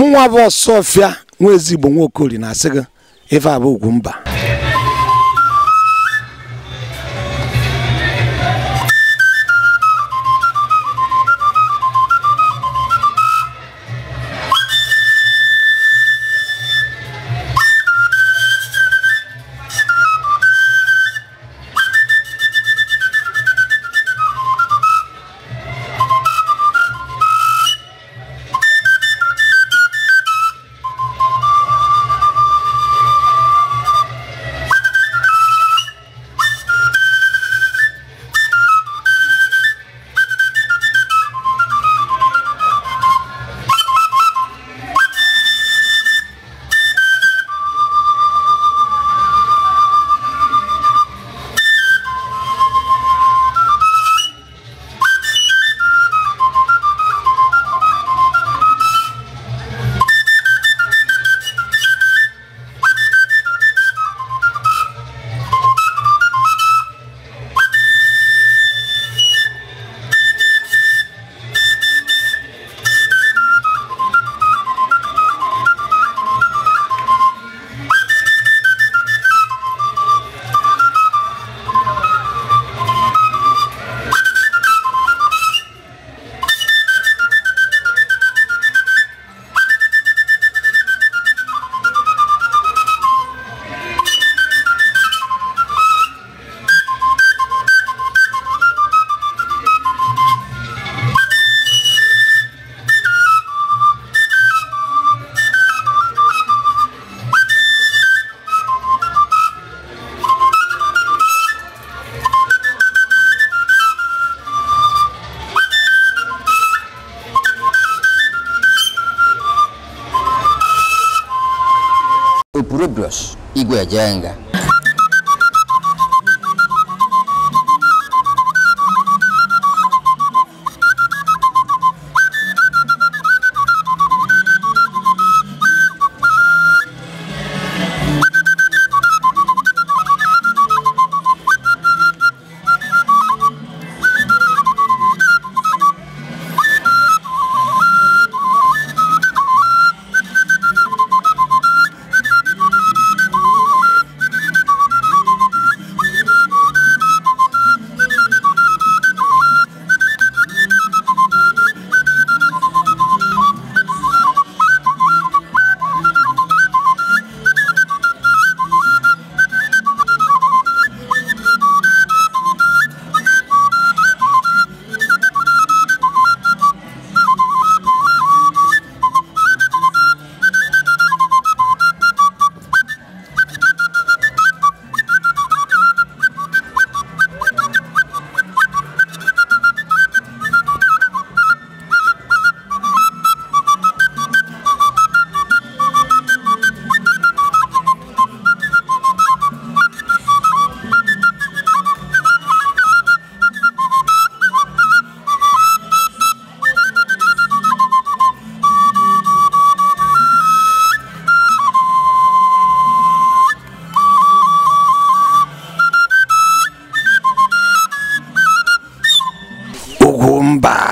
mụnwa bụ ọsọfịa nwa ezigbo nwaokori na-asị gị ife ugwu mba Pureblos, Igwe Bye.